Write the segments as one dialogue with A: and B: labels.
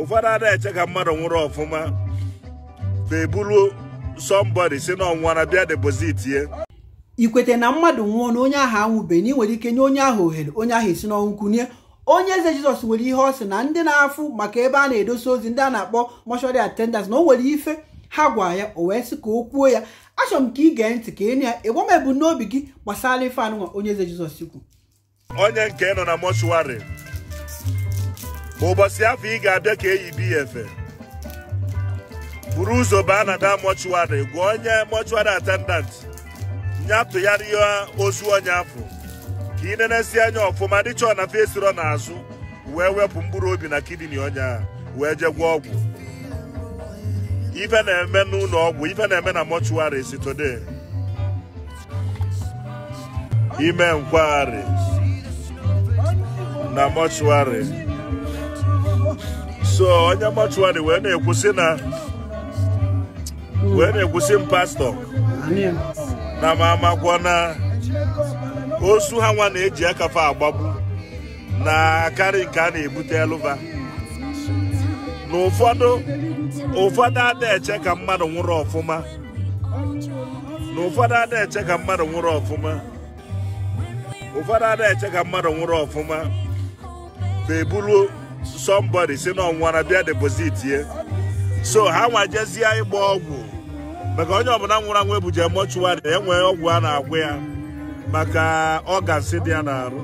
A: ụfọdụ ada eche ka mmadụ nwụrụ ọfụma ma sọmbọdi e si si n'ọnwụnwa bịa depozit ye ikweta na mmadụ nwụọ na onye ahụ anwụbeghị na ị nwere ike nye onye ahụ ohere onye ahụ esi n'ọnwụ kunye onye eze jizọs nwere ihe ọ sị na ndị na-afụ maka ebe a na-edosa ozi ndị a na-akpọ mọshọri atendans na o nwere ife ha gwa ya o wee sị ka o kwuo ya achọrọ m ka ị gee ntị ka ịnụ ya ịgwa m ebu n'obi gị gbasara ife anụnwa onye eze jizọs ikwu onye nke nọ na mọshụwarị ụbọchị afọ ị ga-abịa ka eyi bi ya efe buru ụzọ baa na da gwa onye mọchụwarị atendant nyatụgharịa ozu onye afọ ka ị nenesi anya ọfụma chọọ na fesirọ n'azụ wee wepụ mkpụrụ obi na kidini onye wee jee gwa ọgwụ ife na-eme n'ụlọ ọgwụ ife na-eme na mọchụwarị si ime nkwagharị na mọchụwarị so onye mọchụwarị wee na-ekwusi na wee na-ekwusi m pastọ na m amakwa na ozu ha nwa na-eji akafa agbagbu na akarị nke a na-ebute na ụfọdụ ụfọdụ ada eche ka mmadụ nwụrụ ọfụma ụfọdụ ka ka mmadụ nwụrụ ọfụma somebody si na ọnwụnwara bịa deposit ye so ha nwajezie ịgba ọgwụ maka onye ọbụla nwụrụ anwụ ebuje mọchụwarị enwe ọgwụ a na-agwụ ya maka ọgansị dị ya n'arụ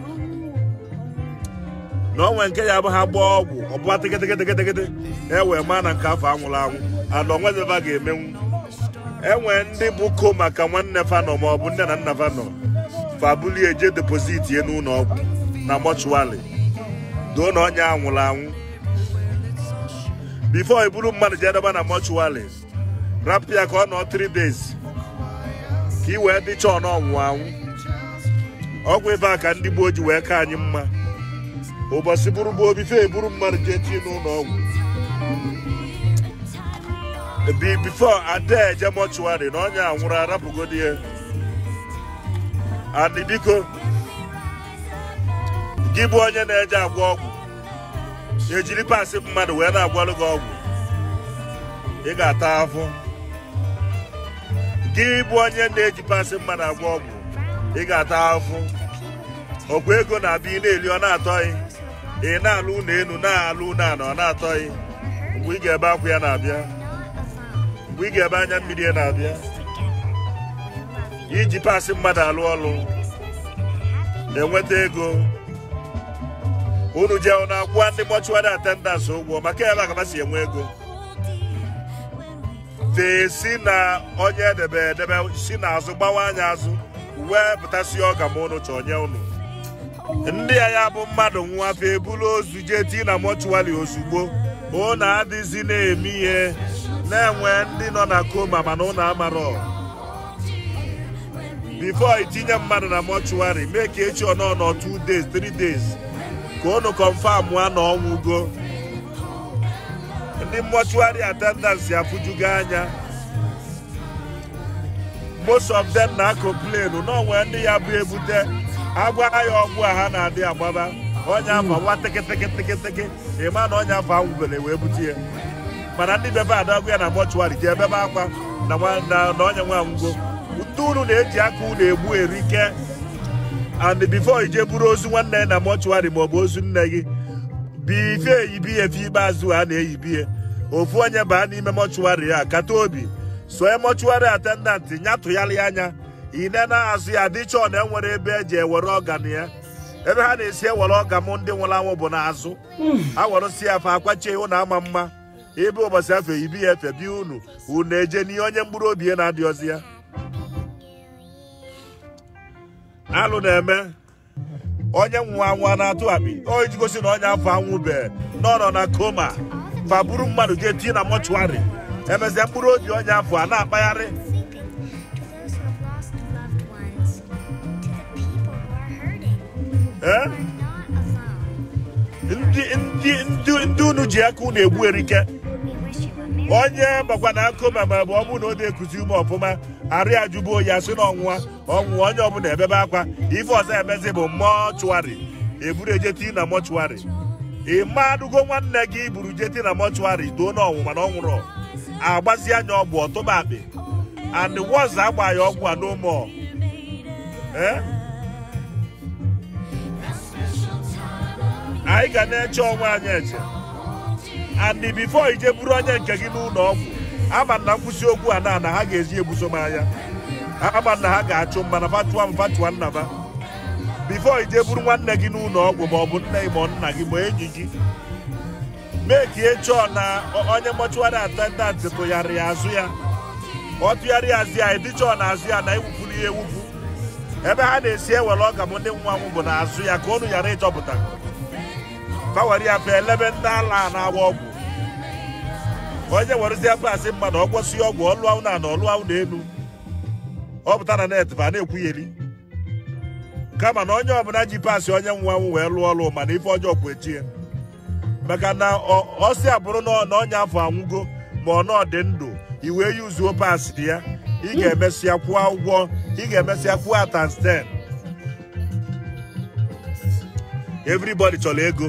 A: na onwe nke ya bụ ha gbaa ọgwụ ọbụla tegetegetegede ewee maa na nke afọ anwụrụ anwụ ana onwedeba ga-emenwu enwe ndị bụ ko maka nwanne fanọ maọbụ nne na nna fanọ fabulie eje depoziti n'ụlọ ọgwụ na mọchụwarị doo na onye a anwụ bifo i buru mmadụ jee dọba na mọchụwarị rapụ ya ka ọ nọ tiri days ka ị wee dịcha ọ n'ọnwụ anwụ ọgwụ ịba ka ndị gboo ji wee ka anyị mma ụbọchị buru bụ obife eburu mmadụ jee chi n'ụlọ ọgwụ bi bifo ada eje mọchụwarị na onye anwụrụ arapụgodi ya adị biko gị bụ onye na-eje agwọ ọgwụ ejiri pasị mmadụ wee na-agwọrụ gị ọgwụ ị ga-ata afụ gị bụ onye na-eji pasị mmadụ agwọ ọgwụ ị ga-ata afụ ọgwụ ego na-abịa ị na-eli ọ na-atọghị ị na-alụ ụlọ elu na-alụ ụlọ ala ọ na-atọghị mgbe ị ga-ebe akwụ ya na-abịa mgbe ị ga-ebe anya mmiri ya na-abịa iji pasị mmadụ alụ ọrụ na-enweta ego unu jee ụnụ akwụwa ndị mọchụwarị atendans ụgwọ maka ebe agaba si enwe ego tesi na onye edebe edebe si n'azụ gbawa anya azụ wee pụtasị ọga ma ụnụ chọọ nye ụnụ ndị a ya bụ mmadụ nwa afọ ebulu ozu jee tii na mọchụwarị ozugbo ụnụ adịzi na-eme ihe na-enwe ndị nọ na koma mana ụnụ amarọ bifo itinye mmadụ na mọchụwarị mee ka echi ọnọ nọ 2 days 3 days ka unu kọnfam a na ọnwụgo ndị mọchuari atendans afụjugo anya most of them na-akụ plenu n'onwe ndị ya bụ ebute agwa ya ọgwụ a ha na-adị agbaba onye afa nwa tekịtekịtekịtekị ịma na onye afọ anwụbere wee bute ya mana ndị bebe adagụ ya na mọchuari ji ebebe akwa na onye nwe anwụgo ute unu na-eji aka unu egbu erike and before ije buru ozu nwanne na mọchụarị ma ọ bụ ozu nne gị bife eyibi ya efe ikpeazụ a na-eyibi ya ofu onye baa n'ime mọchụarị ya kata obi soe mọchụarị atendant nyatụgharị anya ine na-azụ ya chọọ na enwere ebe eji ewere ọgan ya ebe ha na-esi ewere ọga m ndị nwụrụ anwụ bụ n'azụ awerụsi ya afa akwachie ụnụ ama mma ebe ụbọchị afọ eyibi ya efe bi unu unu eje n'ihe onye mkpụrụ obi ya na ozi ya alụ na-eme onye nwa nwa na-atụ abi o gosi na onye afọ anwụbe n'ọnọ na koma faburu mmadụ ga tie na mọchụarị emesịa mkpụrụ obi onye afọ a na-akpagharị eh? ndị unu ji aka unu egbu erike onye gbakwa na koma ma ọ bụrụ na ọ na-ekuzi ume ọfụma arụ ya jụbuo ya si n'ọnwụwa ọnwụwa onye ọbụla ebebe akwa ife ọzọ emezi bụ mọchụarị eburu ejeti na mọchụarị ị adụgo nwanne gị buru jeti na mọchụarị too n'ọnwụwa na ọ nwụrụ agbazi anya ọgwụ ọtụba akpị and wọz agba ya ọgwụ a n'ụmụ anyị ga na-eche ọnwa anyị eche and bifo ije buru onye nke gị n'ụlọ ọgwụ ama na nkwụsị okwu a na ha ga-eji ebuso m anya ama na ha ga-achụ mana fatua m fatua nna m bifo ije buru nwanne gị n'ụlọ ọgwụ ma ọ bụ nne gị ma nna gị ma enyi gị mee ka echọọ na onye mọchụwarị atendant tụgharịa azụ ya ọ tụgharịa azụ ya edichọọ na azụ ya na ewupụrụ ya ewupụ ebe ha na-esi ewere ọga m ndị nwanwụ bụ na azụ ya ka ọnụ ghara ịchọpụta fawere ya fa elebe ndị ala na-agba ọgwụ onye nwerezi ebe asị mma na ọ ọgwụ ọlụ ahụ na ana ọlụ na ọ pụta na net ba na-ekwugheri kama na onye ọbụla ji paasị onye nwe anwụ wee lụọ ọlụ mana ife ọjọọ kwu echie maka na ọsị abụrụ na ọnya afọ anwụgo ma ọ nọ ndụ i wee yuzuo paasị ya ị ga-emesịa kwụọ ụgwọ ị ga-emesịa kwụọ atansten everybody chọrọ ego